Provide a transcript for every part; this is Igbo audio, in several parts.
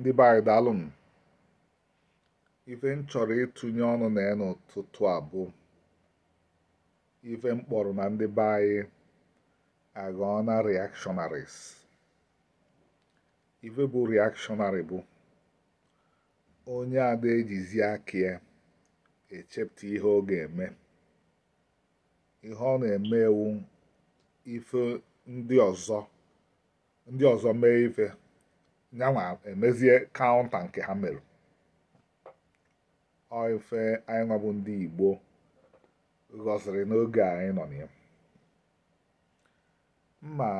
ndị be ife m chọrọ ịtụnye ọnụ na ya n'ụtụtụ a bụ ife m kpọrọ na ndị be anyị agụọ na reactionaries ife bụ rịakshọnarị bụ onye ada ejizi aka ya echepụta ihe ọ ga-eme ihe ọ na-eme ewu ife ndị ọzọ ndị ọzọ mee ife yanwa emezie eh, kaụnta nke ha mere ofe anyị nwabụ ndị igbo gosiri n'oge anyị nọ na ma mma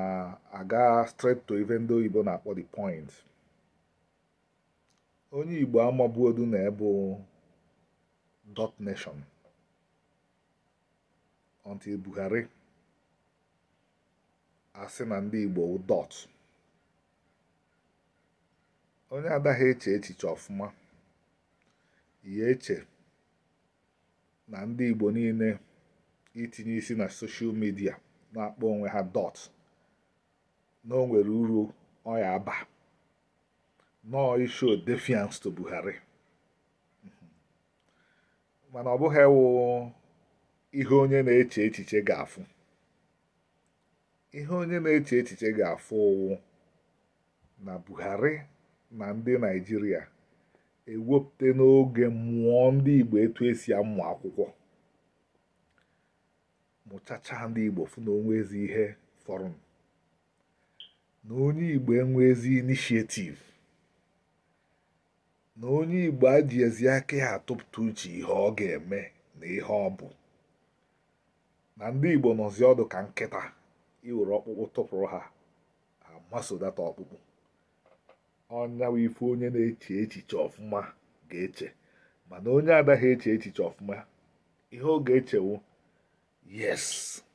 aga straight to ife ndị oyibo na-akpọ the point onye igbo amabuodu na ebu dot nation until buhari asị na ndị igbo dot onye adaghị eche echiche ọfụma ya eche na ndị Igbo niile itinye isi na soshal midia na-akpọ onwe ha dọt na o nwere uru ọya aba nọọ isho defiance to Buhari mm-hmm. mana ọ bụghị ewu ihe onye na-eche echiche ga-afụ ihe onye na-eche echiche ga-afụ ụwụ na Buhari na ndị naijiria ewepụta n'oge mmụọ ndị igbo etu esi amụ akwụkwọ mụchacha ndị igbo fụ na onwe ezi ihe fọrọ na onye igbo enwe ezi inishietiv na onye igbo aji ezi aka ya atụpụta uche ihe ọ ga-eme na ihe ọ bụ na ndị igbo nọzi ọdụ ka nkịta iwere ọkpụkpụ tụpụrụ ha amasodata ọkpụkpụ ọnyawa ife onye na-eche echiche ọfụma ga-eche mana onye adaghị eche echiche ọfụma ihe ọ ga-echewu yes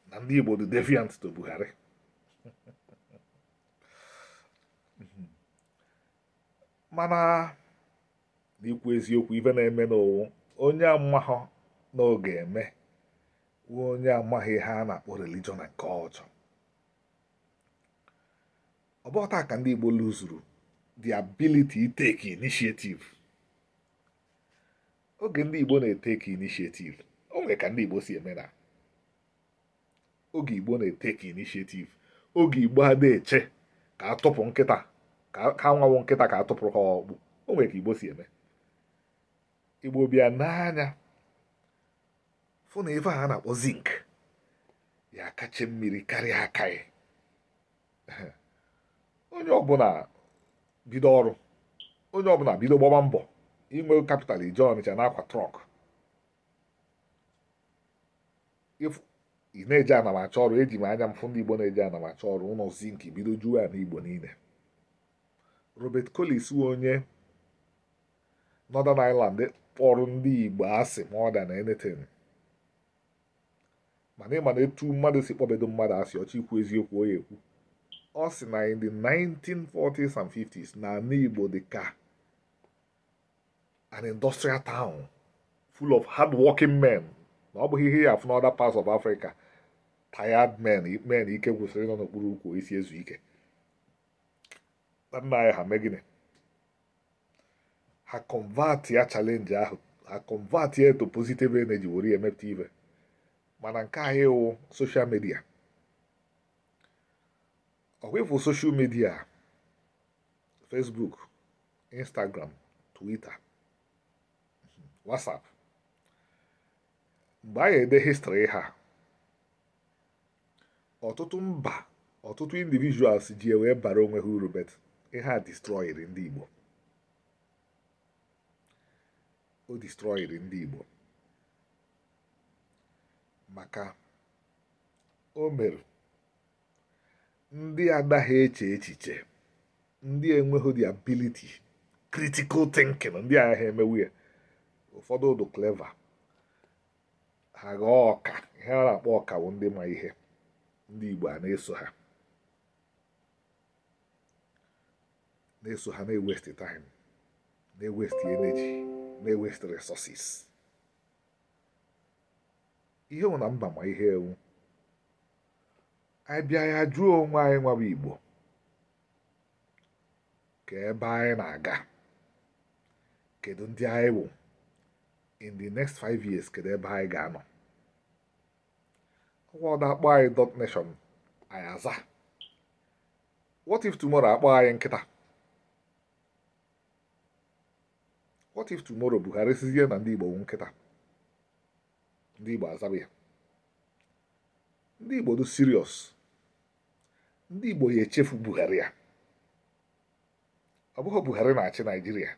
na ndị Igbo dị deviant to Buhari mana n'ikwu eziokwu ibe na-eme n'owu onye amahọ na eme wuo onye amaghị ihe a na-akpọ religion na nke ọjọọ bụ ka ndị Igbo lụzuru the ability take initiative oge ndị Igbo na-eteki initiative o nwere ka ndị Igbo si eme na oge Igbo na-eteki initiative oge Igbo ha na-eche ka atụpụ nkịta ka anwawụ nkịta ka atụpụrụ ha ọkpụ o nwere ka Igbo si eme Igbo bịa n'anya fụ na ife a na-akpọ zinc ya kacha mmiri karịa aka ya onye ọbụla bido ọrụ onye ọbụla bido gbaba mbọ inwe kapital ije ọnịcha n'akwa trọk ị na-eje anamacha ọrụ eji m anya m fụ ndị igbo na-eje anamacha ọrụ ụlọ zinki bido juo ya n'igbo niile robert collins onye northern island kpọrọ ndị igbo asị ma ọ da na enetin mana ịma na etu mmadụ si kpọbedo mmadụ asị ọchị ikwu eziokwu onye ekwu ọ sị na in the 1940s and 50s n'ala Igbo dị ka an industrial town full of hard-working men na ọ bụghị ihe ya afụ n'other parts of Africa tired men men ike gwụsịrị nọ n'okpuru ukwu isi e ezu ike nna anyị ha megine ha convert ya chalenji ahụ ha convert ya to positive energy were ya emepụta ibe mana nke anyị wụ soshal media away for social media facebook instagram twitter uhum, whatsapp mgbe anyị ede histrị ha ọtụtụ mba ọtụtụ individuals ji wee bara onwe ha uru bet ihe a destroyed ndị igbo o destroyed ndị igbo maka o mere ndị adaghị eche echiche ndị enweghị the ability critical thinking ndị agha emewu ụfọdụ ụdụ clever ha ghọọ ọka ihe a na-akpọ ọka bụ ndị ma ihe ndị Igbo a na-eso ha na-eso ha na-ewest time na-ewest energy na-ewest ihe nwụ na mba ma ihe ewu anyị bịa ya jụọ onwe anyị nwawa Igbo ka ebe anyị na-aga kedu ndị anyị bụ in the next five years kedu ebe anyị ga-anọ ọgwọda akpọ anyị dot nation anyị aza what if tomorrow akpọ anyị nkịta what if tomorrow Buhari sizie na ndị Igbo bụ nkịta ndị Igbo azaba ya ndị Igbo dị serious ndị Igbo ya echefu Buhari ya ọ bụghị Buhari na-achị Naịjirịa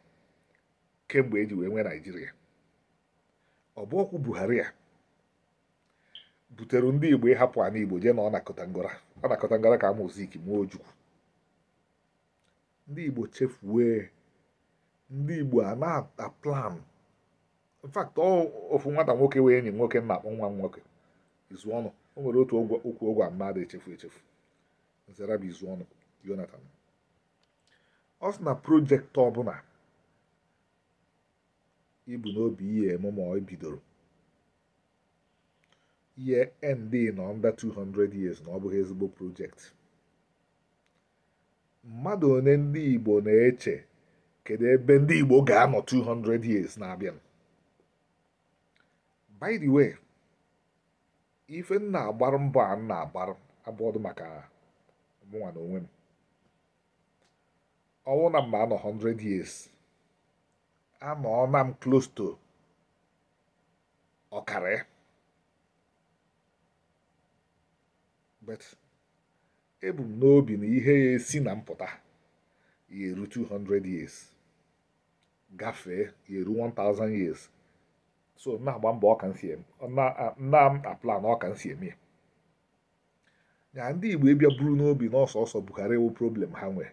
kemgbe eji wee nwee Naịjirịa ọ bụ Buhari ya butere ndị Igbo ịhapụ ana Igbo jee na ọ nakọta ngọra ọ nakọta ngọra ka Ojukwu ndị Igbo chefuwe ndị Igbo a na-ata plan in fact ofu nwata nwoke wee enyi nwoke na akpọ nwa m nwoke izu ọnụ o nwere otu okwu ụgwọ mmadụ echefu echefu nzara bụ izu ọnụ Jonathan ọ sị na projektị ọbụla ibu n'obi ihe emume ọ bidoro ihe ndị nọ nda 200 years na ọ bụghị ezigbo projektị mmadụ one ndị Igbo na-eche kedu ebe ndị Igbo ga-anọ 200 years na-abịa by the way ife nna agbara mbọ a nna agbara abụọdụ maka mụnwa na onwe m ọnwụ na mma anọ 100 years anọọna m close to ọkara but ebu m n'obi na ihe ya esi na mpụta ya eru 200 years gafee ya eru 1000 years so na-agba mbọ ọka nsi na-apla na ọka nsi eme ya na ndị igbo ịbịa buru n'obi na ọsọsọ Buhari wụ problem ha nwee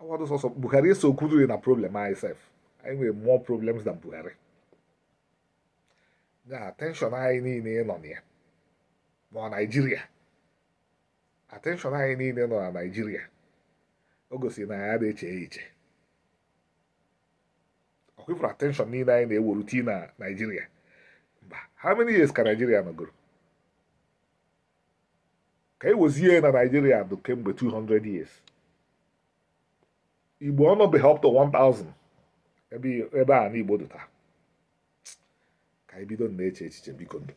awadụ sọsọ Buhari eso kwuduri na problem anyị sef anyị nwere mụọ problems na Buhari na attention anyị niile nọ na ya nọ Naịjirịa attention anyị niile nọ na naijiria o gosiri na anyị adịghị eche iche ọ kwefuru attention niile anyị na-ewuru tii na naijiria mba how many years ka Naịjirịa nọgoro ka e wezie na naijiria dị kemgbe 200 years igbo ọnọbeghị up to 1000 ebe a na dị ka i e bido na-eche echiche biko ndụ